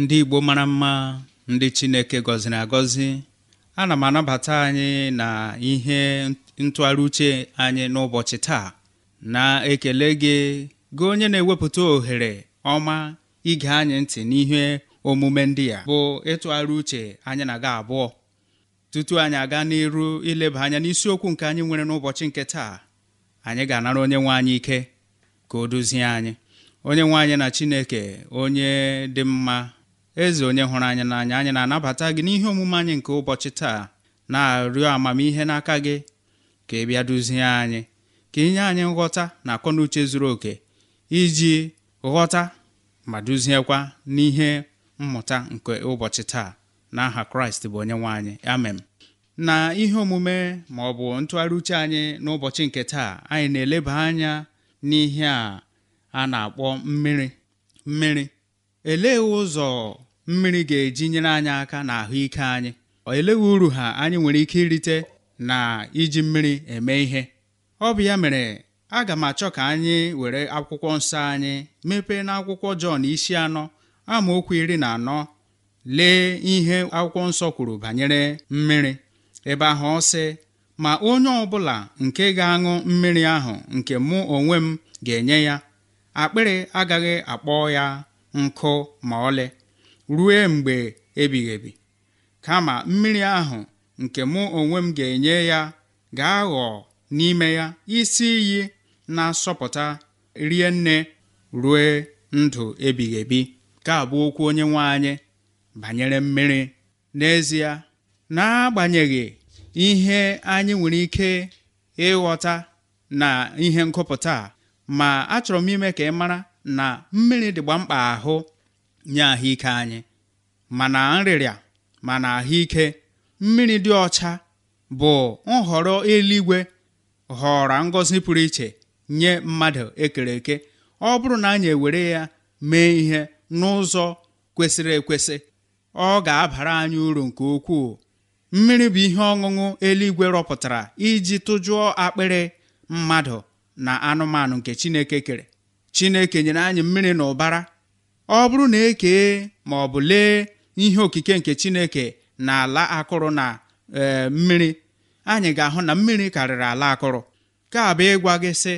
ndị Igbo mara mma ndị Chineke gọziri agọzi ana m anabata anyị na ihe ntụgharị uche anyị n'ụbọchị taa na-ekele gị gị onye na-ewepụta ohere ọma ige anyị ntị n'ihe omume ndị a bụ ịtụgharị uche anyị na-aga abụọ tutu anyị aga n'iru ileba anya n'isiokwu nke anyị nwere n'ụbọchị nke taa anyị ga-anara onye nwe anyị ike ka o duzie anyị onye nwe anyị na Chineke onye dị mma eze onye hụrụ anyị n'anya anyị na-anabata gị n'ihe omume anyị nke ụbọchị taa na-arịọ amamihe n'aka gị ka ị bịa duzie anyị ka inye anyị nghọta na akọnuche zuru oke iji ghọta ma duziekwa n'ihe mmụta nke ụbọchị taa n'aha kraịst bụ onye nwe anyị amen na ihe omume ma ọ bụ ntụgharị uche anyị n'ụbọchị nke taa anyị na-eleba anya n'ihe a a na-akpọ mmiri mmiri elee ụzọ mmiri ga-eji nyere anyị aka na ahụike anyị eleghị uru ha anyị nwere ike irite na iji mmiri eme ihe ọ bụ ya mere aga m achọ ka anyị were akwụkwọ nsọ anyị mepee na akwụkwọ Jọn isi anọ amaokwu iri na anọ lee ihe akwụkwọ nsọ kwuru banyere mmiri ebe ahụ ọ sị ma onye ọbụla nke ga-aṅụ mmiri ahụ nke mụ onwe m ga-enye ya akpịrị agaghị akpọ ya nkụ ma ọlị ruo mgbe ebighị kama mmiri ahụ nke mụ onwe m ga-enye ya ga-aghọ n'ime ya isi iyi na-asọpụta rie nne rue ndụ ebighị ebi ka abụ okwu onye nwe banyere mmiri n'ezie n'agbanyeghị ihe anyị nwere ike ịghọta na ihe nkụpụta ma achọrọ m ime ka ị mara na mmiri dịgba mkpa ahụ nye ahụike anyị mana nrịrịa mana ahụike mmiri dị ọcha bụ nhọrọ eluigwe họrọ ngọzi pụrụ iche nye mmadụ ekere eke ọ bụrụ na anyị ewere ya mee ihe n'ụzọ kwesịrị ekwesị ọ ga-abara anyị uru nke ukwuu mmiri bụ ihe ọṅụṅụ eluigwe rọpụtara iji tụjụọ akpịrị mmadụ na anụmanụ nke Chineke kere Chineke nyere anyị mmiri na ụbara ọ bụrụ na ekee ma ọ bụ lee ihe okike nke chineke na ala akụrụ na e, mmiri anyị ga-ahụ na mmiri karịrị ala akụrụ ka abụ ịgwa gị sị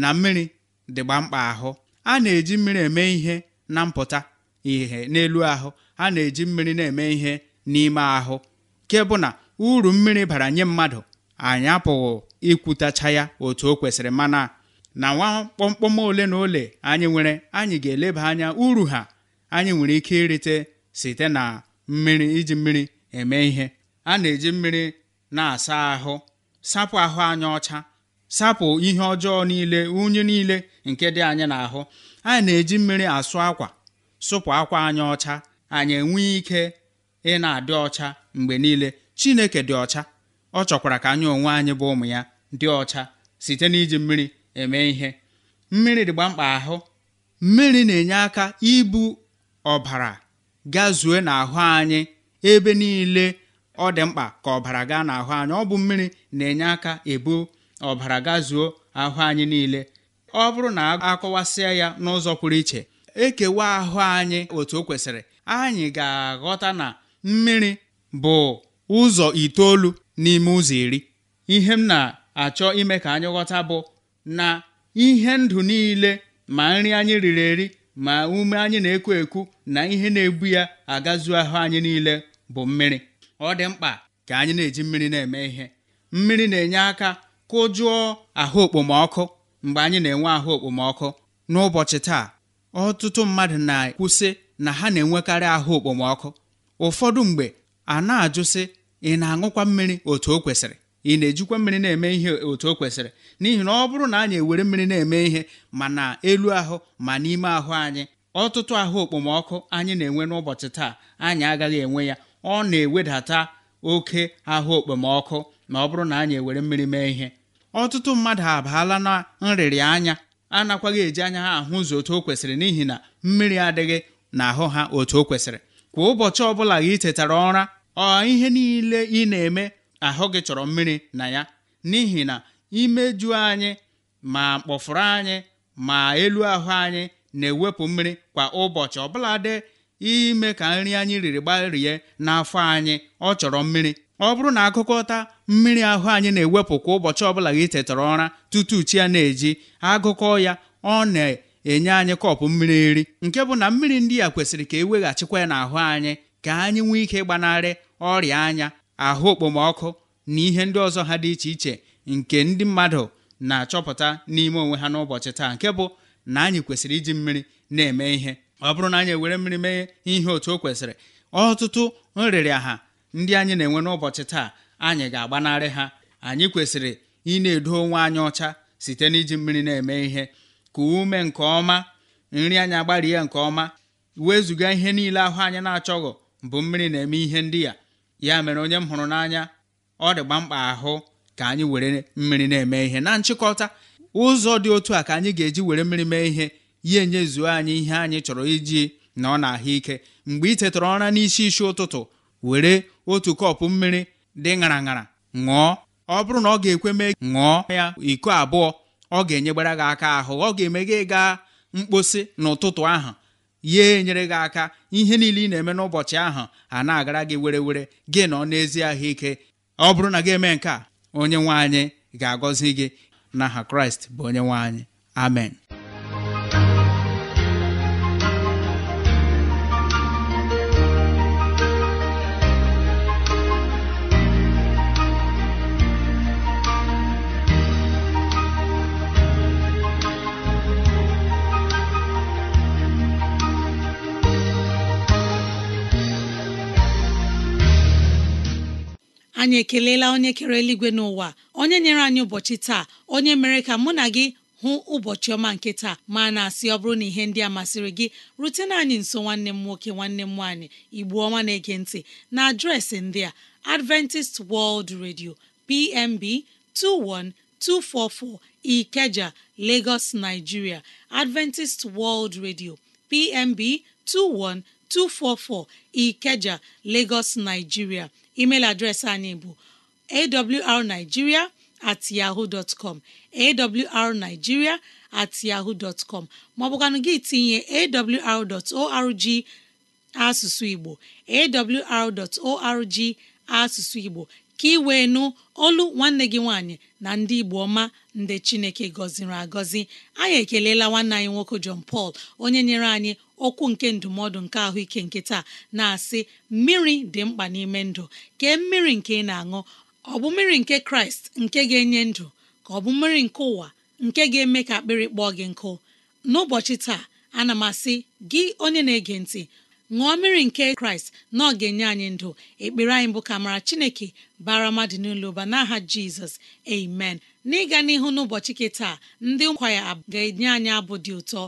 na mmiri dịgba mkpa ahụ a na-eji mmiri eme ihe na mpụta ihe n'elu ahụ a na-eji mmiri na-eme ihe n'ime ahụ nke na uru mmiri bara nye mmadụ anyị apụghị ikwutacha ya otu o kwesịrị mana na nwa kpọmkpọm ole na ole anyị nwere anyị ga-eleba anya uru ha anyị nwere ike irite site na mmiri iji mmiri eme ihe a na-eji mmiri na-asa ahụ sapụ ahụ anyị ọcha sapụ ihe ọjọọ niile unyi niile nke dị anyị n'ahụ anyị na-eji mmiri asụ akwa sụpụ akwa anyị ọcha anyị enwee ike ị na-adị ọcha mgbe niile Chineke dị ọcha ọ chọkwara ka anyị onwe anyị bụ ụmụ ya dị ọcha site n'iji mmiri eme ihe mmiri dịgba mkpa ahụ mmiri na-enye aka ibu ọbara gazue n'ahụ anyị ebe niile ọ dị mkpa ka ọbara gaa n'ahụ anyị ọ bụ mmiri na-enye aka ebu ọbara gazuo ahụ anyị niile ọ bụrụ na akọwasịa ya n'ụzọ pụrụ iche ekewa ahụ anyị otu o kwesịrị anyị ga-aghọta na mmiri bụ ụzọ itoolu n'ime ụzọ iri ihe m na-achọ ime ka anyị ghọta bụ na ihe ndụ niile ma nri anyị riri eri ma ume anyị na-ekwu ekwu na ihe na-ebu ya agazuo ahụ anyị niile bụ mmiri ọ dị mkpa ka anyị na-eji mmiri na-eme ihe mmiri na-enye aka kụjụọ ahụ okpomọkụ mgbe anyị na-enwe ahụ okpomọkụ n'ụbọchị taa ọtụtụ mmadụ na ekwusị na ha na-enwekarị ahụ okpomọkụ ụfọdụ mgbe a na-ajụsị ị na-aṅụkwa mmiri otu o kwesịrị ị na-ejikwa mmiri na-eme ihe otu o kwesịrị n'ihi na ọ bụrụ na anyị ewere mmiri na-eme ihe ma na elu ahụ ma n'ime ahụ anyị ọtụtụ ahụ okpomọkụ anyị na-enwe n'ụbọchị taa anyị agaghị enwe ya ọ na-ewedata oke ahụ okpomọkụ ma ọ bụrụ na anyị ewere mmiri mee ihe ọtụtụ mmadụ abaala na nrịrị anya anakwaghị eji anya ha ahụ ụzọ otu o kwesịrị n'ihi na mmiri adịghị n'ahụ ha otu o kwesịrị kwa ụbọchị ọbụla gị tetara ụra ọ ihe niile ị na-eme ahụ gị chọrọ mmiri na ya n'ihi na imeju anyị ma kpọfụrụ anyị ma elu ahụ anyị na-ewepụ mmiri kwa ụbọchị ọbụladị ime ka nri anyị riri gbarie n'afọ anyị ọ chọrọ mmiri ọ bụrụ na agụkọta mmiri ahụ anyị na-ewepụ kwa ụbọchị ọbụla gị tetara ụra tutu chi ya na-eji agụkọ ya ọ na-enye anyị kọpụ mmiri nri nke bụ na mmiri ndị a kwesịrị ka e weghachikwa ya n'ahụ anyị ka anyị nwee ike gbanarị ọrịa anya ahụ okpomọkụ na ihe ndị ọzọ ha dị iche iche nke ndị mmadụ na-achọpụta n'ime onwe ha n'ụbọchị taa nke bụ na anyị kwesịrị iji mmiri na-eme ihe ọ bụrụ na anyị ewere mmiri mee ihe otu o kwesịrị ọtụtụ ha ndị anyị na-enwe n'ụbọchị taa anyị ga-agbanarị ha anyị kwesịrị ị na-edo onwe anyị ọcha site n'iji mmiri na-eme ihe ka ume nke ọma nri anyị agbarie nke ọma wezụga ihe niile ahụ anyị na-achọghọ bụ mmiri na-eme ihe ndị ya ya mere onye m hụrụ n'anya ọ dịgba mkpa ahụ ka anyị were mmiri na-eme ihe na nchịkọta ụzọ dị otu a ka anyị ga-eji were mmiri mee ihe ya enyezuo anyị ihe anyị chọrọ iji na ọ na-ahụ ike mgbe ị tetara ụra n'isi isi ụtụtụ were otu kọpụ mmiri dị ṅara ṅara ṅụọ ọ bụrụ na ọ ga-ekwe mee ṅụọ ya iko abụọ ọ ga-enyegbara gị aka ahụ ọ ga-eme gị gaa mkposi n'ụtụtụ ahụ ya enyere gị aka ihe niile ị na-eme n'ụbọchị ahụ a na-agara gị were were gị nọ n'ezi ahụike ọ bụrụ na gị eme nke a onye nwe anyị ga-agọzi gị na n'aha kraịst bụ onye nwaanyị amen anyị ekelela onye kere eluigwe n'ụwa onye nyere anyị ụbọchị taa onye mere ka mụ na gị hụ ụbọchị ọma nke taa ma na-asị ọ bụrụ na ihe ndị a masịrị gị rutena anyị nso nwanne m nwoke nwanne m nwaanyị igbu ọma na-ege ntị na adreesị ndị a Adventist World Radio PMB 21244 Ikeja Lagos Nigeria Adventist World Radio PMB 21244 Ikeja Lagos Nigeria email adreesị anyị bụ awrnigeria at yahoo dot com awrnigeria at yahoo dot maọbụkwanụ gị tinye awr asụsụ Igbo awr asụsụ Igbo ka ị wee nụ olu nwanne gị nwaanyị na ndị Igbo ọma ndị Chineke gọziri agọzi anyị ekelela nwanne anyị nwoke John Paul onye nyere anyị okwu nke ndụmọdụ nke ahụike nke taa na-asị mmiri dị mkpa n'ime ndụ kee mmiri nke ị na-aṅụ ọ bụ mmiri nke kraịst nke ga-enye ndụ ka ọ bụ mmiri nke ụwa nke ga-eme ka akpịrị kpọọ gị nkụ n'ụbọchị taa ana m asị gị onye na-ege ntị ṅụọ mmiri nke kraịst na ọ ga-enye anyị ndụ ekpere anyị bụ ka mara chineke bara mmadụ n'ụlọ ụba n'aha jizọs amen n'ịga n'ihu n'ụbọchị nke taa ndị nkwa ya ga-enye anyị abụ dị ụtọ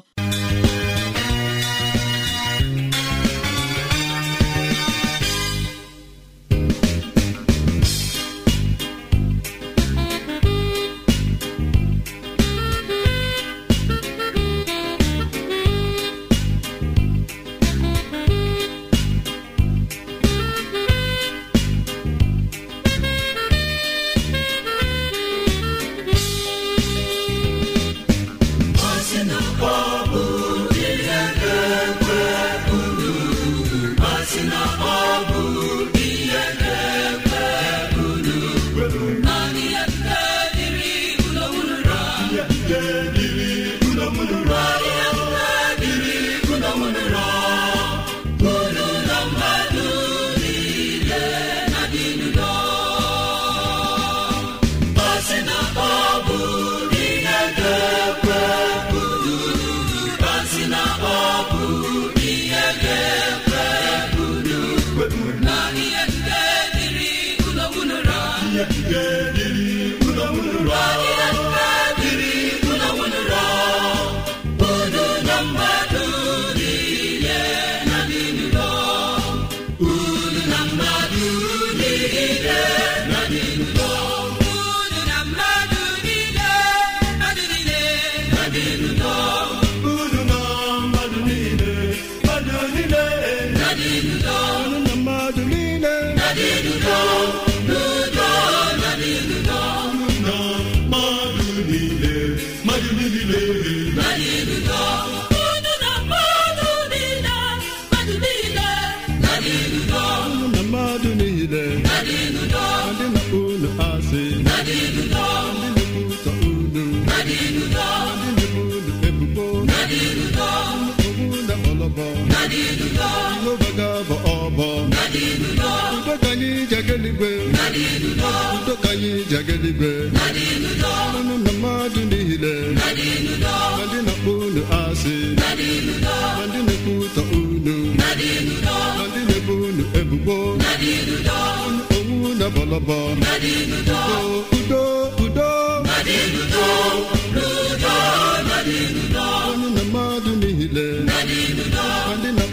ụzọ ka anyị ji aga na mmadụ niile na ndị na-akpọ unu asị na ndị na-ekwutọ unu na ndị na-ebo unu ebubo unu na bọlọbọ udo udo na mmadụ niile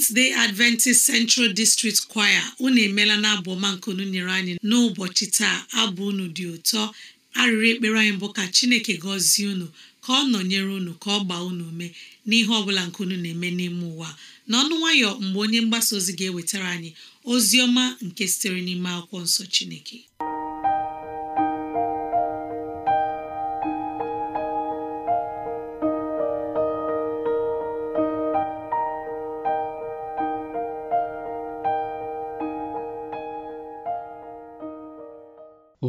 Seventh Day Adventist Central District Choir unu emeela na abụ ọma nke unu nyere anyị n'ụbọchị taa abụ unu dị ụtọ arịrị ekpere anyị bụ ka Chineke gọzie unu ka ọ nọnyere unu ka ọ gbaa unu mee n'ihe ọ bụla nke unu na-eme n'ime ụwa n'ọnụ nwayọ mgbe onye mgbasa ozi ga-ewetara anyị ozi ọma nke sitere n'ime akwụkwọ nsọ Chineke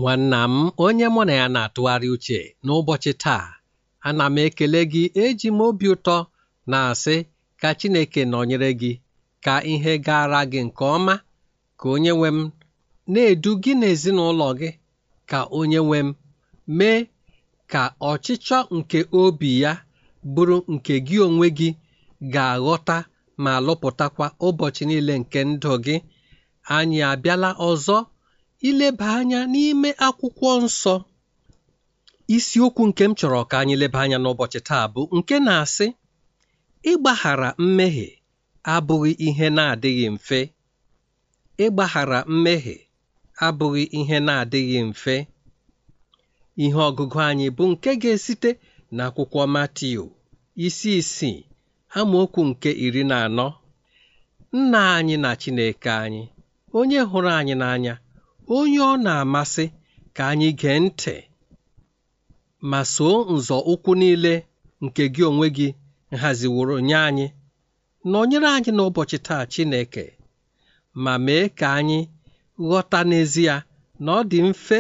nwanna m onye mụ na ya na-atụgharị uche n'ụbọchị taa ana m ekele gị eji m obi ụtọ na-asị ka Chineke nọnyere gị ka ihe gara gị nke ọma ka onye nwe m na-edu gị na gị ka onye nwe m mee ka ọchịchọ nke obi ya bụrụ nke gị onwe gị ga-aghọta ma lụpụtakwa ụbọchị niile nke ndụ gị anyị abịala ọzọ ileba anya n'ime akwụkwọ nsọ isiokwu nke m chọrọ ka anyị leba anya n'ụbọchị taa bụ nke na-asị ịgbaghara mmehie abụghị ihe na-adịghị mfe ịgbaghara mmehie abụghị ihe na-adịghị mfe ihe ọgụgụ anyị bụ nke ga-esite n'akwụkwọ Matiu isi isii amaokwu nke iri na anọ nna anyị na Chineke anyị onye hụrụ anyị n'anya onye ọ na-amasị ka anyị gee ntị ma soo nzọ ụkwụ niile nke gị onwe gị nhaziworo nye anyị nọnyere anyị n'ụbọchị taa Chineke ma mee ka anyị ghọta n'ezie na ọ dị mfe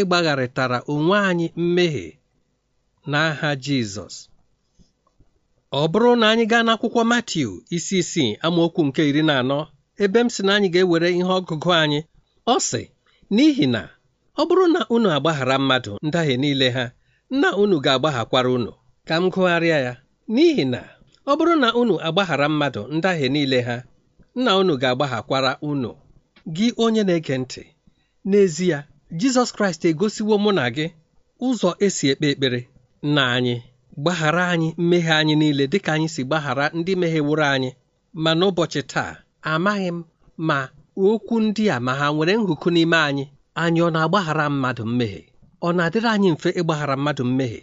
ịgbagharịtara onwe anyị mmehie n'aha Jizọs ọ bụrụ na anyị gaa n'akwụkwọ Matiu isi isii amaokwu nke iri na anọ ebe m si na anyị ga-ewere ihe ọgụgụ anyị ọ sị n'ihi na ọ bụrụ na unu agbaghara mmadụ ndahie niile ha nna unu ga-agbaghakwara unu ka m gụgharịa ya n'ihi na ọ bụrụ na unu agbaghara mmadụ ndahie niile ha nna unu ga-agbaghakwara unu gị onye na-ege ntị n'ezie Jizọs Kraịst egosiwo mụ na gị ụzọ esi ekpe ekpere na anyị gbaghara anyị mmehie anyị niile dịka anyị si gbaghara ndị meghewụrụ anyị ma n'ụbọchị taa amaghị m ma okwu ndị a ma ha nwere nhụkụ n'ime anyị anyị ọ na-agbaghara mmadụ mmehie ọ na-adịrị anyị mfe ịgbaghara mmadụ mmehie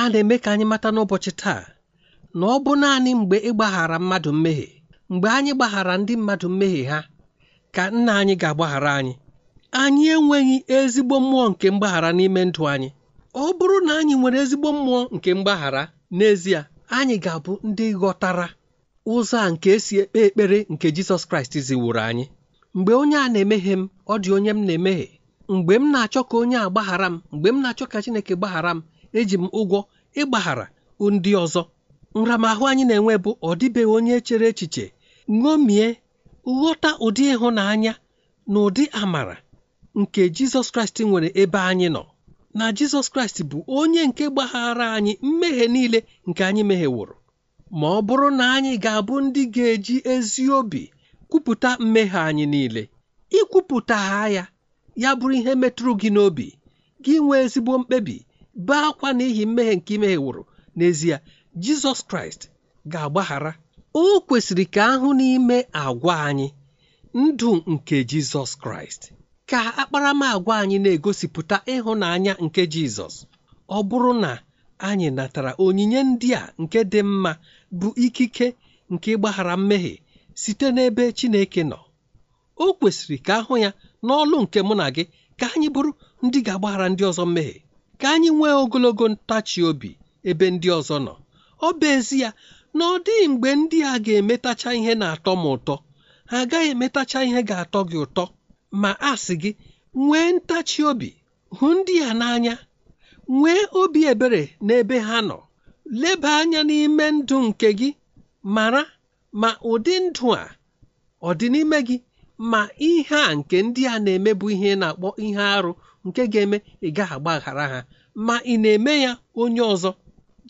a na-eme ka anyị mata n'ụbọchị taa na ọ bụ naanị mgbe ịgbaghara mmadụ mmehie mgbe anyị gbaghara ndị mmadụ mmehie ha ka nna anyị ga-agbaghara anyị anyị enweghị ezigbo mmụọ nke mgbaghara n'ime ndụ anyị ọ bụrụ na anyị nwere ezigbo mmụọ nke mgbaghara n'ezie anyị ga-abụ ndị ghọtara ụzọ a nke esi ekpe ekpere nke Jizọs Kraịst ziwuru anyị mgbe onye a na emeghe m ọ dị onye m na emeghe mgbe m na-achọ ka onye a gbaghara m mgbe m na-achọ ka chineke gbaghara m eji m ụgwọ ịgbaghara ndị ọzọ nramahụ anyị na-enwe bụ ọ dịbeghị onye chere echiche ṅomie ghọta ụdị ịhụnanya na ụdị amara nke jizọs kraịst nwere ebe anyị nọ na jizọs kraịst bụ onye nke gbaghara anyị mmehie niile nke anyị mehieworo ma ọ bụrụ na anyị ga-abụ ndị ga-eji ezi obi kwupụta mmehie anyị niile ikwupụta ha ya ya bụrụ ihe metụrụ gị n'obi gị nwee ezigbo mkpebi bee akwa n'ihi mmehie nke wụrụ n'ezie jizọs kraịst ga-agbaghara o kwesịrị ka ahụ n'ime agwa anyị ndụ nke jizọs kraịst ka akparamagwa anyị na-egosipụta ịhụnanya nke jizọs ọ bụrụ na anyị natara onyinye ndị a nke dị mma bụ ikike nke ịgbaghara mmehie site n'ebe Chineke nọ o kwesịrị ka ahụ ya n'ọlụ nke mụ na gị ka anyị bụrụ ndị ga-agbaghara ndị ọzọ mmehie ka anyị nwee ogologo ntachi obi ebe ndị ọzọ nọ ọ bụ ezi ya na ọ dịghị mgbe ndị a ga-emetacha ihe na-atọ m ụtọ ha agaghị emetacha ihe ga-atọ gị ụtọ ma a sị gị nwee ntachi obi hụ ndị a n'anya nwee obi ebere n'ebe ha nọ leba anya n'ime ndụ nke gị mara ma ụdị ndụ a ọ dị n'ime gị ma ihe a nke ndị a na-eme bụ ihe na-akpọ ihe arụ nke ga-eme ị gaghị agbaghara ha ma ị na-eme ya onye ọzọ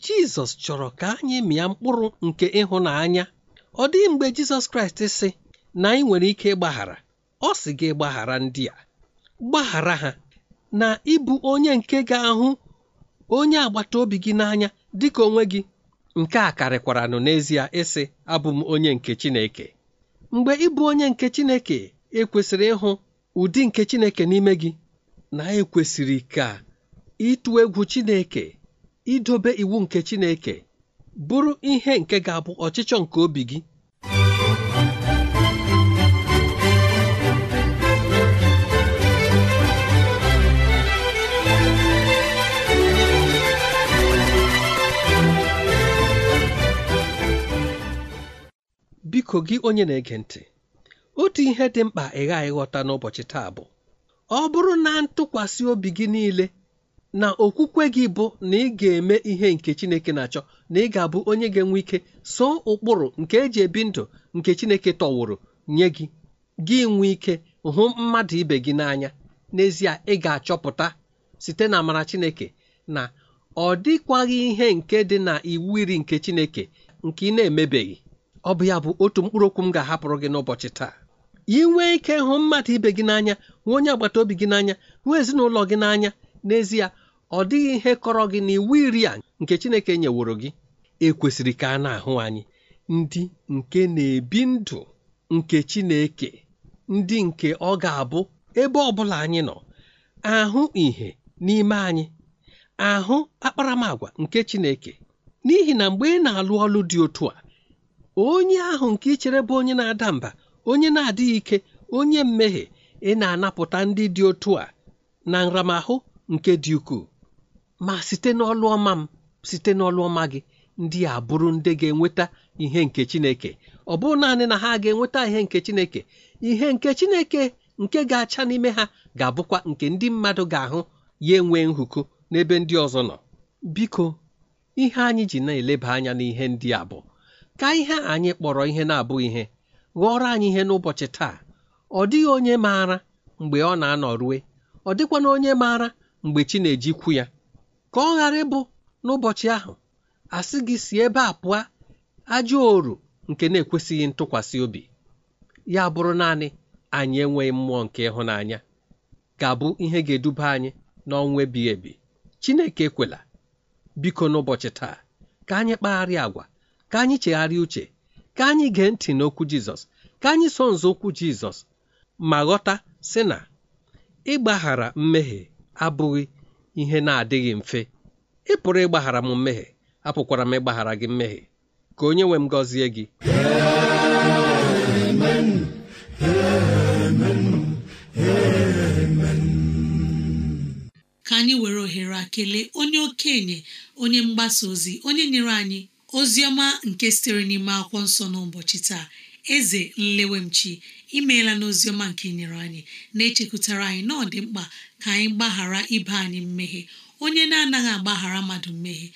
Jizọs chọrọ ka anyị mịa mkpụrụ nke ịhụnanya ọ dịghị mgbe Jizọs Kraịst sị na anyị nwere ike ịgbaghara ọ sị gị gbaghara ndị a gbaghara ha na ịbụ onye nke ga-ahụ onye agbata obi gị n'anya dịka onwe gị nke a karịkwaranụ n'ezie ịsị abụ m onye nke Chineke mgbe ịbụ onye nke Chineke ekwesịrị ịhụ ụdị nke Chineke n'ime gị na ekwesịrị ka ịtụ egwu Chineke idobe iwu nke Chineke bụrụ ihe nke ga-abụ ọchịchọ nke obi gị biko gị onye na-ege ntị otu ihe dị mkpa ị ghaghị ịghọta n'ụbọchị taa bụ ọ bụrụ na ntụkwasị obi gị niile na okwukwe gị bụ na ị ga-eme ihe nke Chineke na-achọ na ị ga-abụ onye ga-enwe ike so ụkpụrụ nke eji ebi ndụ nke Chineke tọwụrụ nye gị gị nwee ike hụ mmadụ ibe gị n'anya n'ezie ị ga-achọpụta site na amara Chineke na ọ dịkwaghị ihe nke dị na iwu iri nke Chineke nke ị na-emebeghị ọ bụ ya bụ otu mkpụrụ okwu m ga-ahapụrụ gị n'ụbọchị taa ị nwee ike hụ mmadụ ibe gị n'anya nwee onye agbata obi gị n'anya nwee ezinụlọ gị n'anya n'ezie ọ dịghị ihe kọrọ gị n'iwu iri a nke Chineke nyeworo gị ekwesịrị ka a na-ahụ anyị ndị nke na-ebi ndụ nke Chineke ndị nke ọ ga-abụ ebe ọ bụla anyị nọ ahụ ihe n'ime anyị ahụ akparamagwa nke Chineke n'ihi na mgbe ị na-alụ ọlụ dị otu a onye ahụ nke ị chere bụ onye na-ada mba onye na-adịghị ike onye mmehie ị na-anapụta ndị dị otu a na nramahụ nke dị ukwuu ma site n'ọlụ ọma m site n'ọlụ ọma gị ndị a bụrụ ndị ga-enweta ihe nke Chineke ọ bụrụ naanị na ha ga-enweta ihe nke Chineke ihe nke Chineke nke ga-acha n'ime ha ga-abụkwa nke ndị mmadụ ga-ahụ ya enwe nhụkụ n'ebe ndị ọzọ nọ biko ihe anyị ji na-eleba anya n'ihe ndị a bụ ka ihe anyị kpọrọ ihe na-abụ ihe ghọrọ anyị ihe n'ụbọchị taa ọ dịghị onye maara mgbe ọ na-anọ rue ọ dịkwana onye maara mgbe chi na-ejikwu ya ka ọ ghara ịbụ n'ụbọchị ahụ asị gị si ebe a pụọ ajọ oru nke na-ekwesịghị ntụkwasị obi ya bụrụ naanị anyị enweghị mmụọ nke ịhụnanya ga-abụ ihe ga-eduba anyị n'ọnwa ebighị ebi Chineke ekwela biko n'ụbọchị taa ka anyị kpagharịa agwa ka anyị chegharịa uche ka anyị gee ntị n'okwu Jizọs ka anyị so nzọụkwụ Jizọs ma ghọta sị na ịgbaghara mmehie abụghị ihe na-adịghị mfe ịpụrụ pụrụ ịgbaghara m mmehie apụkwara m ịgbaghara gị mmehie ka onye nwe m gọzie gị ka anyị were ohere kelee onye okenye onye mgbasa ozi onye nyere anyị oziọma nke sitere n'ime akwụkwọ nsọ n'ụbọchị taa eze nlewemchi imeela n'oziọma nke inyere anyị na-echekwutara anyị na ọ dị mkpa ka anyị gbaghara ibe anyị mmehie onye na-anaghị agbaghara mmadụ mmehie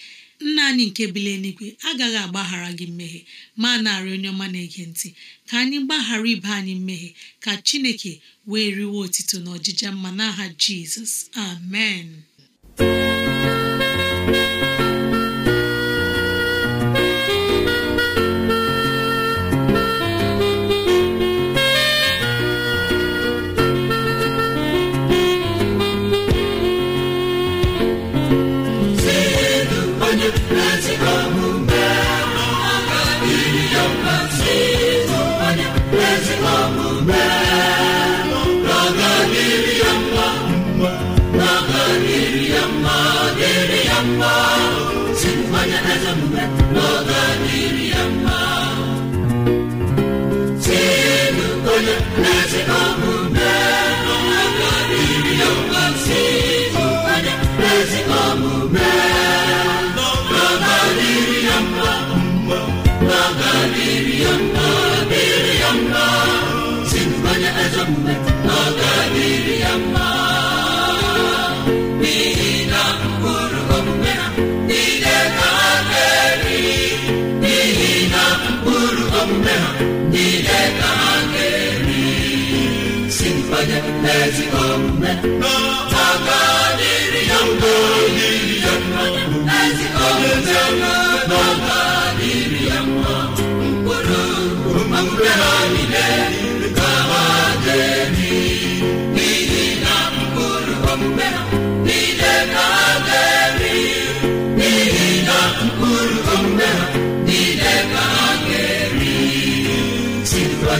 nna anyị nke bili nigwe agaghị agbaghara gị mmehie ma narị onye ọma na-ege ntị ka anyị gbaghara ibe anyị mmehie ka chineke wee riwe otito na ọjịja mma n'aha jizọs amen ezigbo omume n'ọga dịrị ya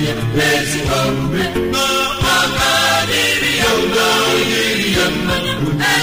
ya mma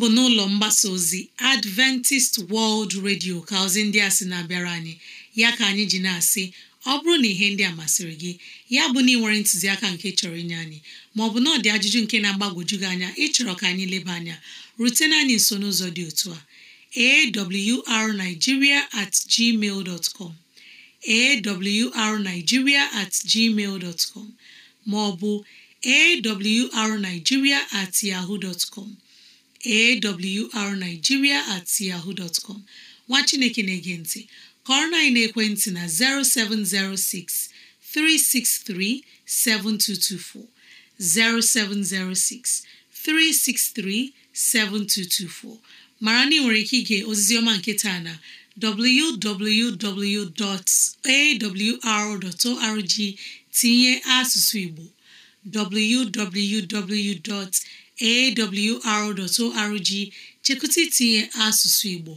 bụ n'ụlọ mgbasa ozi Adventist World Radio ka ozi ndị a sị na-abịara anyị ya ka anyị ji na-asị ọ bụrụ na ihe ndị a masịrị gị ya bụ na ị nwere ntụziaka nke chọrọ inye anyị maọbụ na ọ dị ajụjụ nke na-agbagwoju gị anya ịchọrọ ka anyị leba anya rutena anyị nso n'ụzọ dị otu a awrnigeria at gmail dot com awrnigeria at gmail dot com maọbụ awrnigeria at yahoo dot com awrnigeria at nwa chineke na-ege ntị kọrọ na-ekwentị na 0706 363 7224 0706 363 mara na ị nwere ike ige ozizioma ọma nke taa na www.awr.org tinye asụsụ Igbo www. awr.org chekụta itinye asụsụ Igbo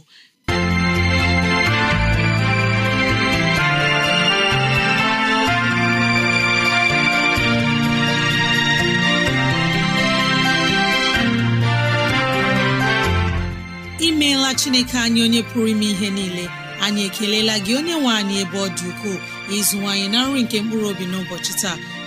imeela Chineke anyị onye pụrụ ime ihe niile anyị ekelela gị onye nwe anyị ebe ọ dị ukwuu ịzụwanyị na nri nke mkpụrụ obi n'ụbọchị taa